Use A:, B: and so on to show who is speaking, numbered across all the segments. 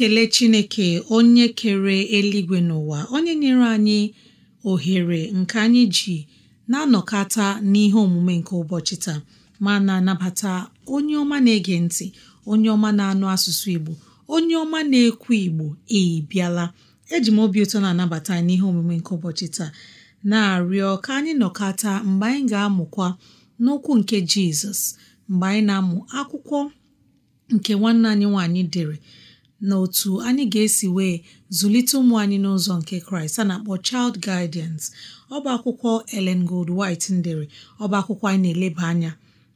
A: na-ekele Chineke onye kere eluigwe n'ụwa onye nyere anyị ohere nke anyị ji na-anọkọta n'ihe omume nke ụbọchị taa ma na-anabata onye ọma na-ege ntị onye ọma na-anụ asụsụ Igbo onye ọma na-ekwu Igbo ịbịala eji m obi ụtọ na-anabata n'ihe omume nke ụbọchị taa na-arịọ ka anyị nọkọta mgbe anyị ga-amụkwa n'okwu nke Jizọs mgbe anyị na-amụ akwụkwọ nke nwanne anyị nwaanyị dere na otu anyị ga-esi wee zụlite ụmụ anyị n'ụzọ nke kraịst a na-akpọ Child Guidance ọba akwụkwọ Ellen Gold White ndere ọba akwụkwọ anyị na-eleba anya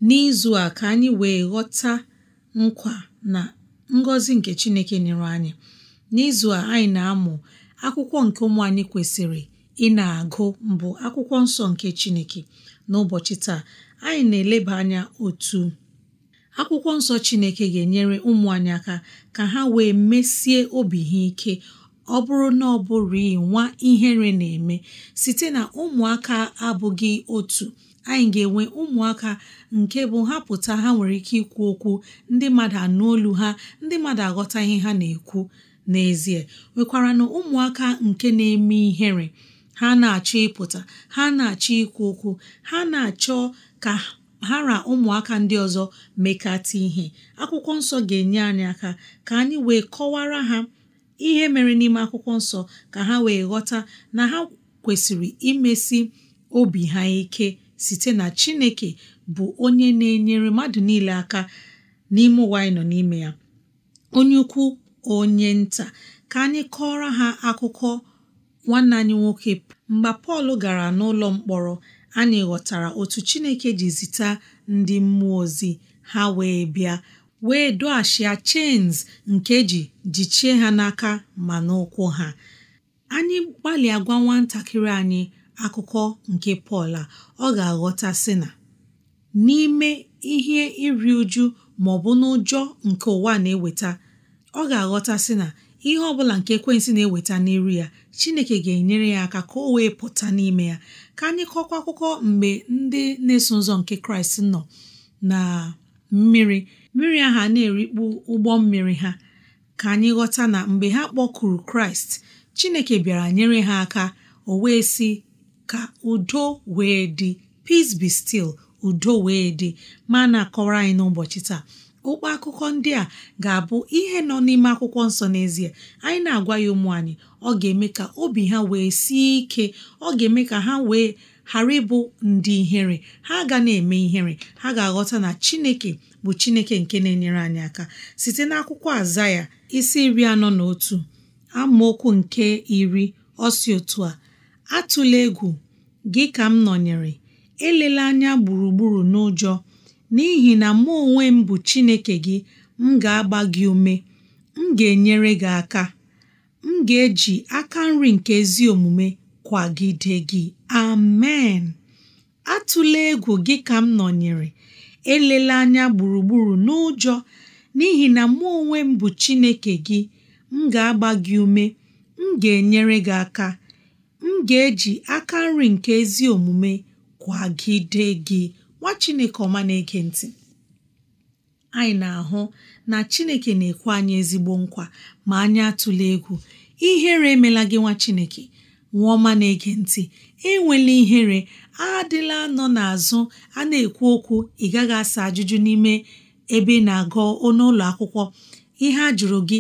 A: n'izu a ka anyị wee ghọta nkwa na ngọzi nke chineke nyere anyị n'izu a anyị na-amụ akwụkwọ nke ụmụ anyị kwesịrị ị na-agụ mbụ akwụkwọ nsọ nke chineke n'ụbọchị taa anyị na-eleba anya otu akwụkwọ nsọ Chineke ga-enyere ụmụ anyị aka ka ha wee mesie obi ha ike ọ bụrụ na ọ bụghị nwa ihere na-eme site na ụmụaka abụghị otu anyị ga-enwe ụmụaka nke bụ ha pụta ha nwere ike ikwu okwu ndị mmadụ anụ olu ha ndị mmadụ aghọta ihe ha na-ekwu n'ezie nwekwara na ụmụaka nke na-eme ihere ha na-achọ ịpụta ha na-achọ ikwu okwu ha na-achọ ka ha na ụmụaka ndị ọzọ mekata ihe akwụkwọ nsọ ga-enye anyị aka ka anyị wee kọwara ha ihe mere n'ime akwụkwọ nsọ ka ha wee ghọta na ha kwesịrị imesi obi ha ike site na Chineke bụ onye na-enyere mmadụ niile aka n'ime ụwa anyị nọ n'ime ya onye ukwu onye nta ka anyị kọọrọ ha akụkọ nwanne anyị nwoke mgbe Pọl gara n'ụlọ mkpọrọ anyị ghọtara otu Chineke ji zita ndị mmụọ ozi ha wee bịa wee doghachia chains nke ji jichie ha n'aka ma n'ụkwụ ha anyị gbalịa gwa nwatakịrị anyị akụkọ nke Pọl a ọ ga-aghọta sị na n'ime ihe iri uju ma ọ bụ n'ụjọ nke ụwa na-eweta ọ ga-aghọta sị na ihe ọbụla nke ekwensị na-eweta n'iru ya chineke ga-enyere ya aka ka o wee pụta n'ime ya ka anyị kọkwa akụkọ mgbe ndị na-eso ụzọ nke kraịst nọ na mmiri mmiri ahụ na-erikpu ụgbọ mmiri ha ka anyị ghọta na mgbe ha kpọkuru kraịst chineke bịara nyere ha aka o wee sị ka udo wee dị peace be still udo wee dị ma na-akọwara anyị n'ụbọchị taa ụkpọ akụkọ ndị a ga-abụ ihe nọ n'ime akwụkwọ nsọ n'ezie anyị na-agwa ya ụmụ anyị ọ ga-eme ka obi ha wee sie ike ọ ga-eme ka ha wee ghara ịbụ ndị ihere ha ga na-eme ihere ha ga-aghọta na Chineke bụ Chineke nke na-enyere anyị aka site n'akwụkwọ aza ya isi iri anọ na otu amaokwu nke iri ọsi otu a atụla egwu gị ka m nọnyere elela anya gburugburu n'ụjọ n'ihi na mụ onwe m bụ Chineke gị m ga-agba gị ume m ga-enyere gị aka m ga-eji aka nri nke ezi omume kwagide gị amen atụla egwu gị ka m nọnyere elela anya gburugburu n'ụjọ n'ihi na mụ onwe m bụ Chineke gị m ga-agba gị ume m ga-enyere gị aka m ga-eji aka nri nke ezi omume kwagide gị nwa chineke ọma na-ege ntị anyị na-ahụ na chineke na-ekwe anyị ezigbo nkwa ma anyị atụla egwu ihere emela gị nwa chineke nwa ọma na-ege ntị enwela ihere adịla nọ n'azụ a na-ekwu okwu ị gaghị asa ajụjụ n'ime ebe na-agụ n'ụlọ akwụkwọ ihe a jụrụ gị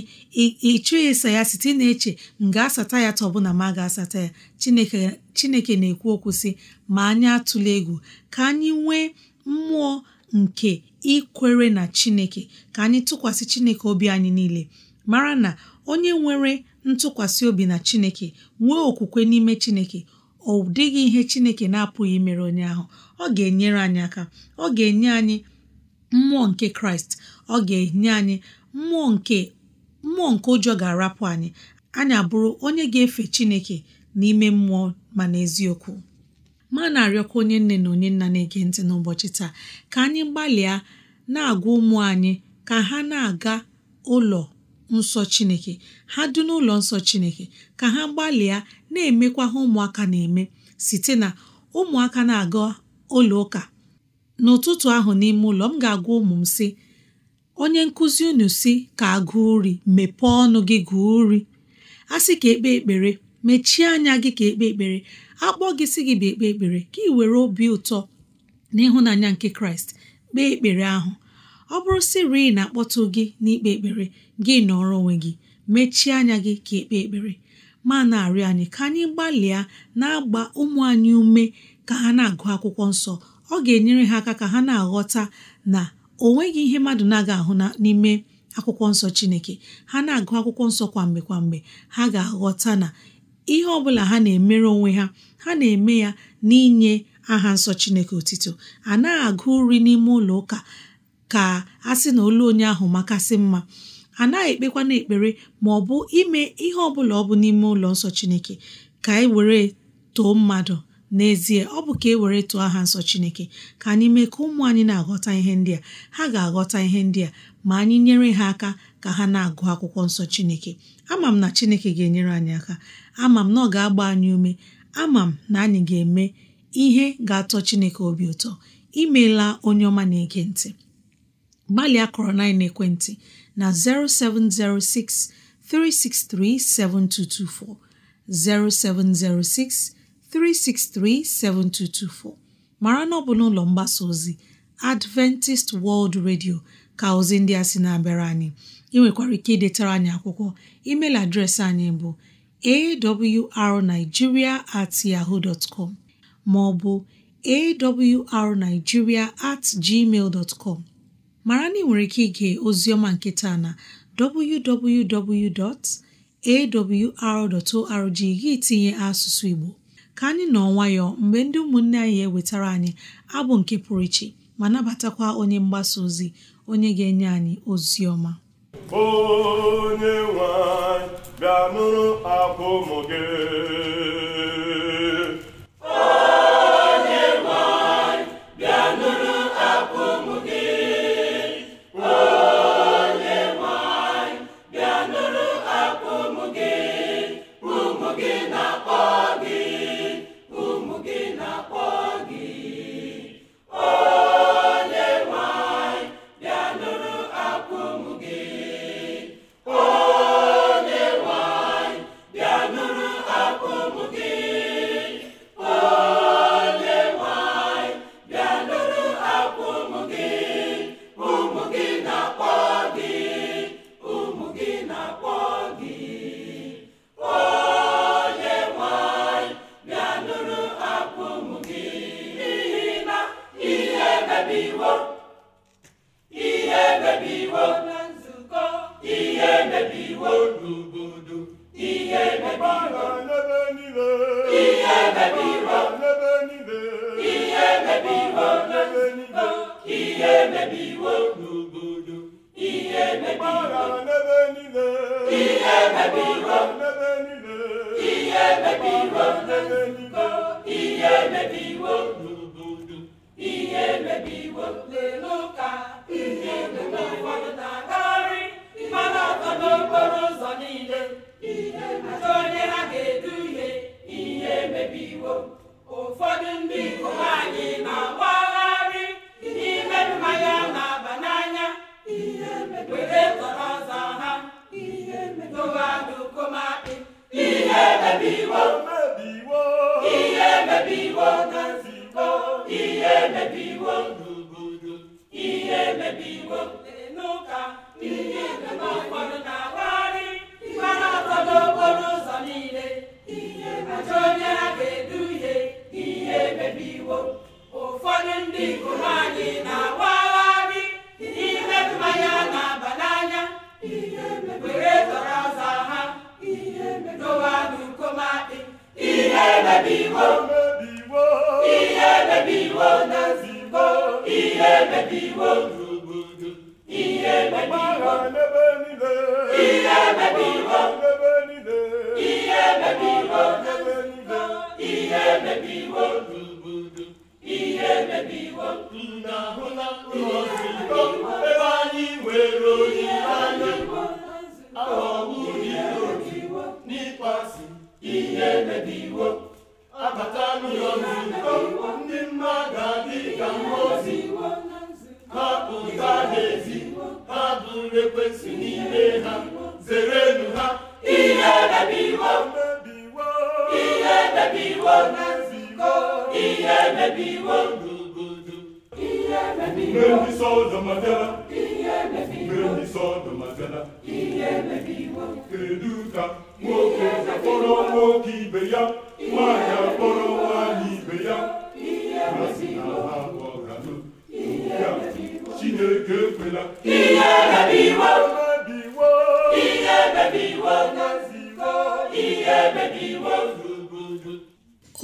A: ịchụghị ịsa ya site na-eche m ga-asata ya tọbụ na m ga-asata ya chineke chineke na-ekwu okwu sị ma anyị atụla egwu ka anyị nwee mmụọ nke ikwere na chineke ka anyị tụkwasị chineke obi anyị niile mara na onye nwere ntụkwasị obi na chineke nwee okwukwe n'ime chineke ọ dịghị ihe chineke na-apụghị mere onye ahụ ọ ga-enyere anyị aka ọ ga-enye anyị mmụọ nke kraịst ọ ga-enye anyị mmụọ nke mmụọ nke ụjọ ga-arapụ anyị anyị abụrụ onye ga-efe chineke n'ime mmụọ ma n'eziokwu ma na-arịọkwa onye nne na onye nna na-ege ntị n'ụbọchị taa ka anyị gbalịa na-agwa ụmụ anyị ka ha na-aga ụlọ nsọ Chineke ha dị n'ụlọ nsọ Chineke ka ha gbalịa na-emekwa ha ụmụaka na-eme site na ụmụaka na-aga ụlọ ụka n'ụtụtụ ahụ n'ime ụlọ m ga-agwa ụmụ m sị onye nkụzi unu si ka agụụ uri mepee ọnụ gị gụọ uri a sị ka ekpe ekpere mechie anya gị ka ekpe ekpere akpọ gị si gị bịa ekpe ekpere ka ị were obi ụtọ n'ịhụnanya nke kraịst kpee ekpere ahụ ọ bụrụ sịrị na-akpọtụ gị n'ikpe ekpere gị nọrọ onwe gị mechie anya gị ka ekpe ekpere ma na-arịọ anyị ka anyị gbalịa na-agba ụmụ anyị ume ka ha na-agụ akwụkwọ nsọ ọ ga-enyere ha aka ka ha na-aghọta na o nweghị ihe mmadụ na-aga ahụ n'ime akwụkwọ nsọ Chineke ha na-agụ akwụkwọ nsọ kwamgbe kwamgbe ha ga-aghọta na ihe ọ bụla ha na-emere onwe ha ha na-eme ya n'inye aha nsọ Chineke otito a naghị agụ nri n'ime ụlọ ụka ka a sị na olu onye ahụ makasị mma a naghị ekpekwana ekpere ma ọ bụ ime ihe ọ bụla ọ bụ n'ime ụlọ nsọ Chineke ka e were too mmadụ n'ezie ọ bụ ka e were tụọ aha nsọ Chineke ka anyị mee ka ụmụ anyị na-aghọta ihe ndị a ha ga-aghọta ihe ndị a ma anyị nyere ha aka ka ha na-agụ akwụkwọ nsọ Chineke ama m na Chineke ga-enyere anyị aka ama m na ọ ga-agba anyị ume ama m na anyị ga-eme ihe ga-atọ Chineke obi ụtọ imeela onye ọma na-ege ntị gbalịa kọrọ na ekwentị na 0706 363 7224 0706 363 7224 mara na ọ bụ n'ụlọ mgbasa ozi Adventist World Radio ka ozi ndị a sị na-abịara anyị ị nwekwara ike idetara anyị akwụkwọ email adreesị anyị bụ awrnigeria at yahoo dot com ma ọ bụ awrnigeria at gmail dot com mara na ị nwere ike ige ozioma nke taa na www.awr.org gị tinye asụsụ Igbo ka anyị nọ nwayọọ mgbe ndị ụmụnne anyị ewetara anyị abụ nke pụrụ iche ma nabatakwa onye mgbasa ozi onye ga-enye anyị ozi ọma
B: onye nwanyị bịa nụrụ akwa ụmụ gị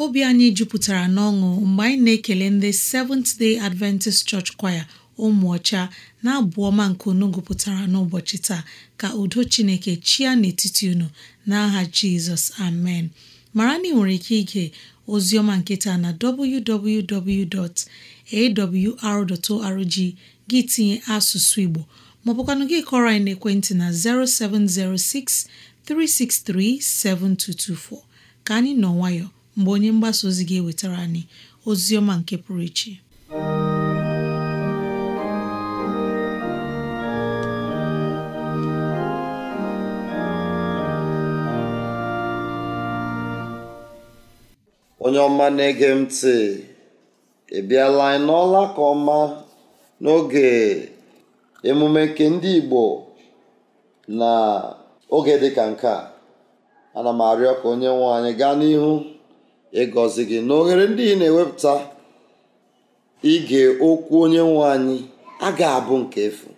A: obi anyị jupụtara n'ọṅụ mgbe anyị na-ekele ndị Seventh Day Adventist Church Choir ụmụ ọcha na-abụ ọma nke unu gụpụtara n'ụbọchị taa ka udo Chineke chia n'etiti unu n'aha Jizọs amen mara na ị nwere ike ige ozi ọma nketa na www.awr.org gị tinye asụsụ Igbo maọbụkwanụ gị kọrọ anyị n'ekwentị na 0706 363-7224 ka anyị nọ nwayọ mgbe onye mgbasa ozi ga-ewetara anyị ozi ọma nke pụrụ iche
C: onye ọma na-ege m ntị ị bịala anyị n'ọla ka ọma n'oge emume nke ndị Igbo na oge dị ka nke a ana m arịọ ka onye nwe anyị gaa n'ihu ịgọzi gị na oghere ndị ị na-ewepụta ige okwu onye nwe anyị a ga-abụ nke efu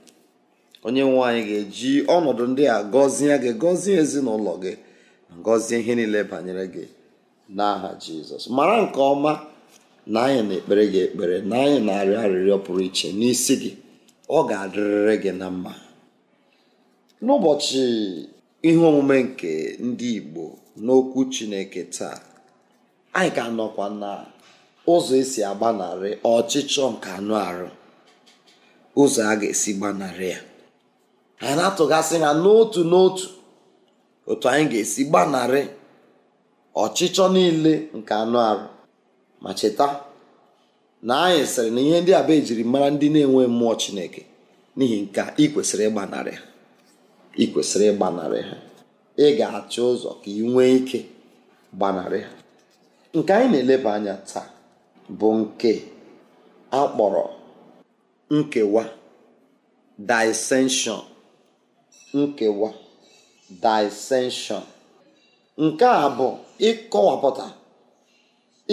C: onye nwe anyị ga-eji ọnọdụ ndị a gọzie gị gọzie ezinụlọ gị gọzie ihe niile banyere gị n'aha jizọs mara nke ọma na anyị na-ekpere gị ekpere na anyị na-arịọ arịrịọ pụrụ iche n'isi gị ọ ga-adịrịrị gị na mma n'ụbọchị ihe omume nke ndị Igbo n'okwu Chineke taa anyị ka nọkwa na ụzọ esi agbanarị ọchịchọ nke anụ arụ ụzọ a ga-esi gbanarị ya anyị na-atụgasị ha n'otu n'otu otu anyị ga-esi gbanarị ọchịchọ niile nke anụ arụ ma cheta na anyị sịrị na ihe ndị a e mara ndị na-enwe mmụọ Chineke n'ihi nke ị kwesịrị ịgbanarị ya. ị kwesịrị ịgbanarị ha ị ga-achọ ụzọ ka ị nwee ike gbanarị ha nke anyị na-eleba anya taa bụ nke a kpọrọ nkewa dissension nkewa dissension nke a bụ ịkọwapụta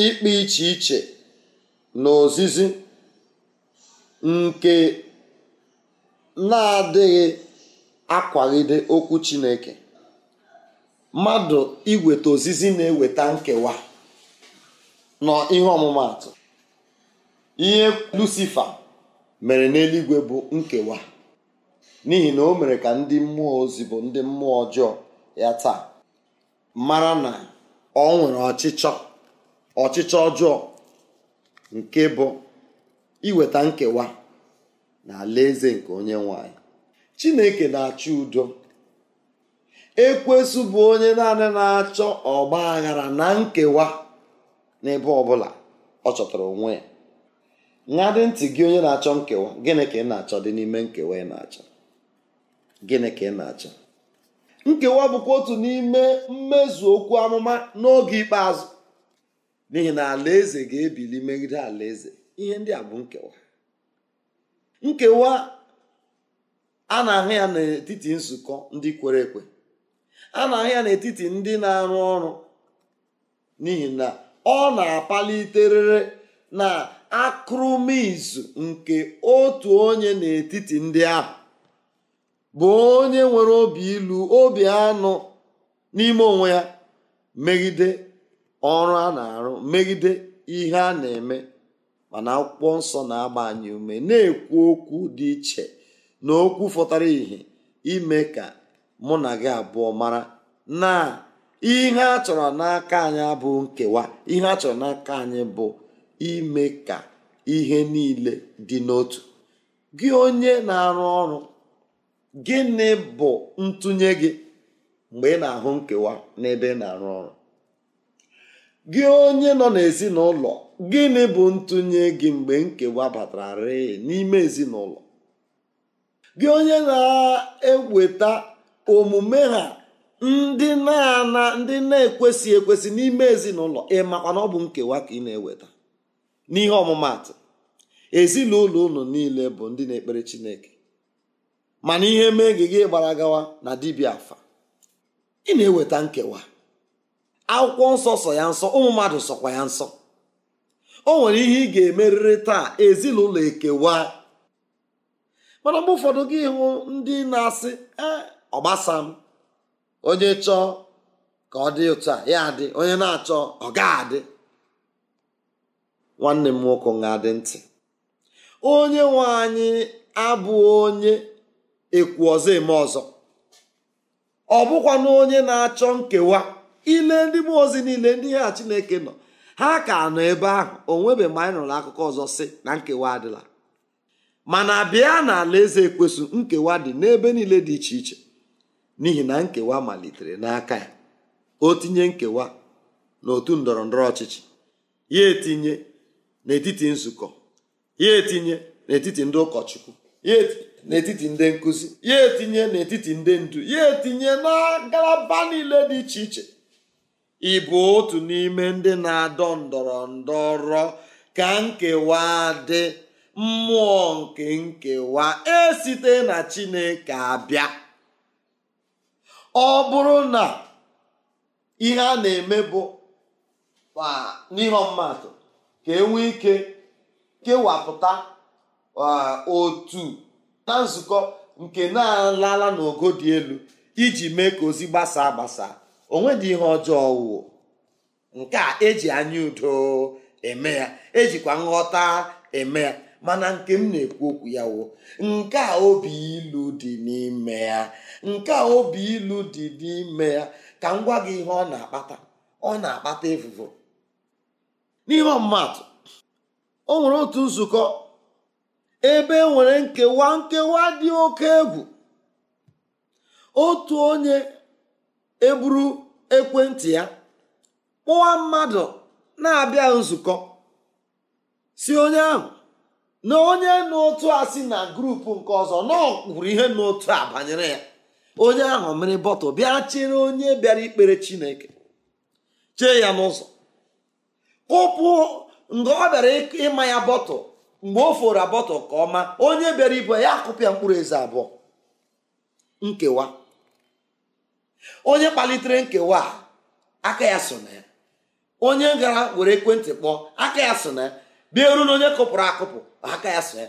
C: ikpe iche iche na ozizi nke na-adịghị akwagide okwu chineke mmadụ iweta ozizi na-eweta nkewa nọ ihe ọmụmatụ ihe lucifa mere n'eluigwe bụ nkewa n'ihi na o mere ka ndị mmụọ ozi bụ ndị mmụọ ọjọọ ya taa mara na ọ nwere ọchịchọ ọchịchọ ọjọọ nke bụ iweta nkewa na eze nke onye nwanyị chineke na-achọ udo ekwesu bụ onye naanị na-achọ ọgba aghara na nkewa n'ebe ọbụla ọ chọtara onwe ya dị ntị gị onye na-achọ nkewa gịnị ka ị na-achọ dị n'ime nkewa ị na-achọ gịnị ka ị na-achọ nkewa bụkwa otu n'ime mmezu okwu amụma n'oge ikpeazụ n'ihi na alaeze ga-ebili megide alaeze ihe ndị a bụ nkewa nkewa a na-ahụ ya n'etiti nzukọ ndị kwere ekwe a na-ahụ ya n'etiti ndị na-arụ ọrụ n'ihi na ọ na-apaliterịrị na akụrụmizu nke otu onye n'etiti ndị ahụ bụ onye nwere obi ilu obi anụ n'ime onwe ya megide ọrụ a na-arụ megide ihe a na-eme mana akwụkwọ nsọ na-agba ume na-ekwu okwu dị iche na okwu fọtara ihe ime ka mụ na gị abụọ mara na ihe a chọrọ n'aka anyị abụ nkewa ihe a chọrọ n'aka anyị bụ ime ka ihe niile dị n'otu gị onye na-arụ ọrụ gịnị bụ ntụnye gị mgbe ị na-ahụ nkewa n'ebe ị na-arụ ọrụ gị onye nọ n'ezinụlọ gịnị bụ ntụnye gị mgbe nkewa batara rịị n'ime ezinụlọ gị onye na-eweta omume ha ndị na-ana ndị na-ekwesị ekwesị n'ime ezinụlọ makwa na ọ bụ nkewa ka ị na-eweta n'ihe ọmụmatụ ezinụlọ ụlọ niile bụ ndị na-ekpere chineke mana ihe mee gị gị gbara gawa na dibia afa ị na-eweta nkewa akwụkwọ nsọ sọ ya nsọ ụmụ mmadụ sọkwa ya nsọ o nwere ihe ị ga-emerịrị taa ezinụlọ ekewa mana mgbe ụfọdụ gị hụ ndị na-asị e, ọgbasa m onye chọọ ka ọ dị ụtọ a ya onye na-achọ ọ ga-adị nwanne m nwoke nga adị ntị onye nwe anyị abụ onye ekwu ọzọ eme ọzọ ọ bụkwa na onye na-achọ nkewa ile ndị mụọ ozi niile ndị ha Chineke nọ ha ka nọ ebe ahụ o nwebeghị mgbe anyị nụrụ akụkọ ọzọ si na nkewa adịla mana bịa na alaeze ekwesu nkewa dị n'ebe niile dị iche iche n'ihi na nkewa malitere n'aka ya o tinye nkewa n'otu ndọrọ ndọrọ ọchịchị ya etinye n'etiti nzukọ ya etinye n'etiti ndị ụkọchukwu ya etinye n'etiti ndị nkụzi ya etinye n'etiti ndị ndu ya etinye na ngalaba niile dị iche iche ịbụ otu n'ime ndị na-adọ ndọrọ ndọrọ ka nkewa dị mmụọ nke nkewa esite na chineke abịa ọ bụrụ na ihe a na-eme bụ n'ihe ọmụmatụ ka e nwee ike kewapụta otu na nzukọ nke na-alala n'ogo dị elu iji mee ka ozi gbasaa onwe dị ihe ọjọọ wụ nke a eji anya udo eme ya ejikwa nghọta eme ya mana nke m na-ekwu okwu ya wo nke a obi ilu dị n'ime ya nke a obi ilu dị n'ime ya ka m gwa gị ihe ọ na-akpata ọ na-akpata efufu n'ihe ọmụmatụ o nwere otu nzukọ ebe e nwere nkewa nkewa dị oke egwu otu onye eburu ekwentị ya kpụwa mmadụ na-abịa nzukọ si onye ahụ na onye n'otu a si na grupu nke ọzọ nọ ihe n'otu a banyere ya onye ahụ mmiri bọtụ bịa chere onye bịara ikpere chineke chee ya n'ụzọ kụpụ nga ọ bịara ịma ya bọtụ mgbe o fora bọtụ ka ọma onye bịara ibu ya akụpịa mkpụrụ eze abụọ nkewa onye kpalitere nkewa aka ya so na ya onye gara were ekwentị kpọọ aka ya so na ya bịa eru na onye kụpụrụ akụpụ aka ya so ya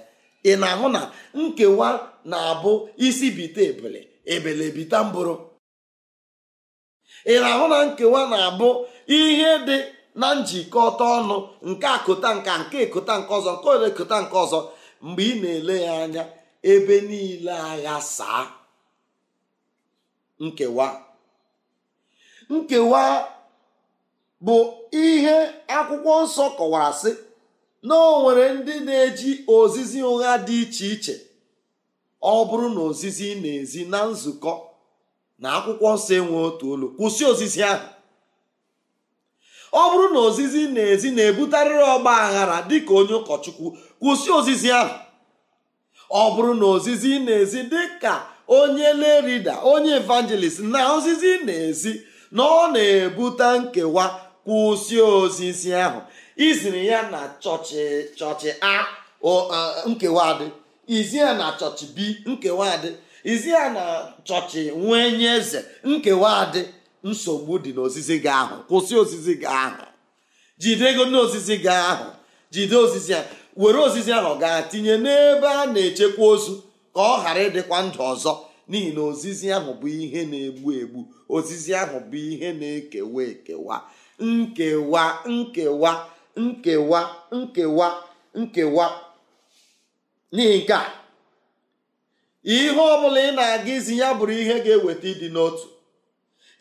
C: ị na-ahụ na nkewa na-abụ isi bite ebele ebele bita mbụrụ ị na-ahụ na nkewa na-abụ ihe dị na njikọta ọnụ nke akụta nka nke ekụta nke ọzọ nke ole ekụta nke ọzọ mgbe ị na-ele ya anya ebe niile agha saa nkewa nkewa bụ ihe akwụkwọ nsọ kọwara sị na o nwere ndị na-eji ozizi ụgha dị iche iche ọ bụrụ na ozizi na-ezi na nzukọ na akwụkwọ nsọ enwe otu olu kwụsị ozizi ahụ ọ bụrụ na ozizi na-ezi na-ebutarịrị ọgba aghara dịka onye ụkọchukwu kwụsị ozizi ahụ ọ bụrụ na ozizi na-ezi dịka onye lerida onye evangelist na ozizi na-ezi na ọ na-ebute nkewa kwụsị ozizi ahụ iziri ya na chọchị chọchị a nkewa dị izi ya na chọchị b nkewa dị izi na chọchị nwee eze nkewa dị nsogbu dị n'ozizi gị ahụ kwụsị ozizi gị ahụ jide ego n'ozizi gị ahụ jide ozizi ya were ozizi ahụ gaa tinye n'ebe a na-echekwa ozu ka ọ ghara ịdịkwa ndụ ọzọ n'ihi na ozizi ahụ bụ ihe na-egbu egbu ozizi ahụ bụ ihe na-ekewa ekewa nkewa nkewa nkewa nkewa nkewa n'ihi nke a ihe ọ bụla ị na-aga izi ya bụrụ ihe ga-eweta ịdị n'otu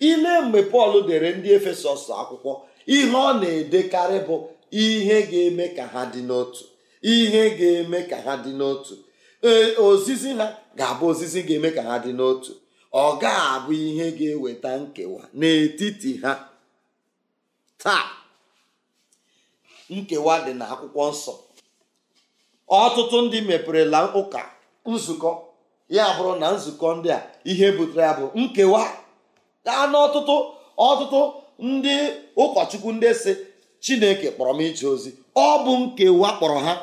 C: ile mgbe pọl dere ndị efesọs akwụkwọ ihe ọ na-edekarị bụ ihe ga-eme ka ha dị n'otu ihe ga-eme ka ha dị n'otu ee ozizi ha ga-abụ ozizi ga-eme ka ha dị n'otu ọ ga-abụ ihe ga-eweta nkewa n'etiti ha taa nkewa dị na akwụkwọ nsọ ọtụtụ ndị meperela ụka nzukọ ya bụrụ na nzukọ ndị a ihe butere ya bụ nkewa gaa n'ọtụtụ ọtụtụ ndị ụkọchukwu ndị si chineke kpọrọ m ije ozi ọ bụ nkewa kpọrọ ha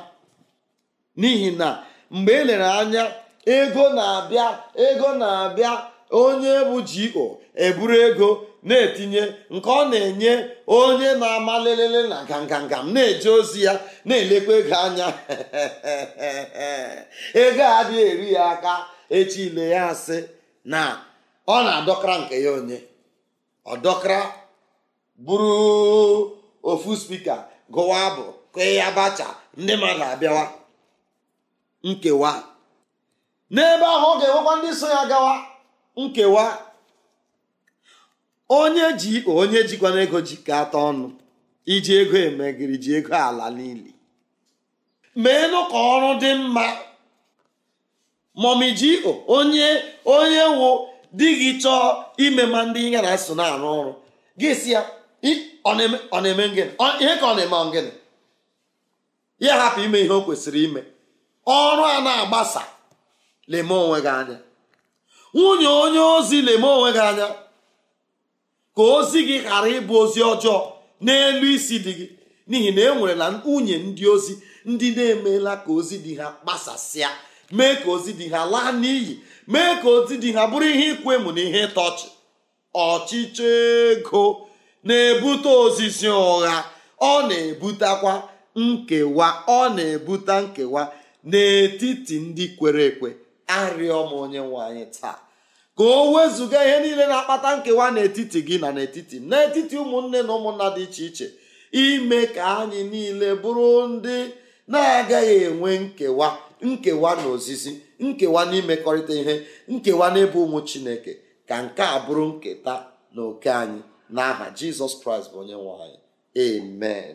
C: n'ihi na mgbe e lere anya ego na-abịa ego na-abịa onye bụ GO eburu ego na-etinye nke ọ na-enye onye na-ama lelele na nganganga na-eje ozi ya na-elekwa ego anya ego adịghị eri ya aka echi ile ya asị na ọ na-adọkara nke ya onye ọdọkara bụrụ ofu spika gụwa abụ kee ya ndị mmadụ abịawa nkewa n'ebe ahụ ọ ga-enwekwa ndị so ya gawa nkewa onye ji onye jikwana ego ji jikọta ọnụ iji ego emegiri ji ego ala niile meenụ ka ọrụ dị mma momijio onye onye wụ di gị chọọ ime ma ndị ihe na so na-arụ ọrụ gị si ya ọ na-eme ngịnị ihe ka ọ na-eme ngịnị ya hapụ ime ihe o kwesịrị ime ọrụ a na-agbasa leme onwe gị anya nwunye onye ozi leme onwe gị anya ka ozi gị ghara ịbụ ozi ọjọọ n'elu isi dị gị n'ihi na e nwere na nwunye ndị ozi ndị na emela ka ozi dị ha gbasasịa mee ka ozi dị ha laa n'iyi mee ka ozi dị ha bụrụ ihe ịkwụ emu na ihe ịta ọchịchọ ego na-ebute ozizi ụgha ọ na-ebutekwa nkewa ọ na-ebute nkewa n'etiti ndị kwere ekwe arịọ m onye nwe anyị taa ka o wezụga ihe niile na-akpata nkewa n'etiti gị na n'etiti n'etiti ụmụnne na ụmụnna dị iche iche ime ka anyị niile bụrụ ndị na-agaghị enwe nkewa nkewa na ozizi nkewa n'imekọrịta ihe nkewa n'ebe ụmụ chineke ka nke a bụrụ nketa na oke anyị n'aha jizọs kraịst bụ onye nwe anyị amen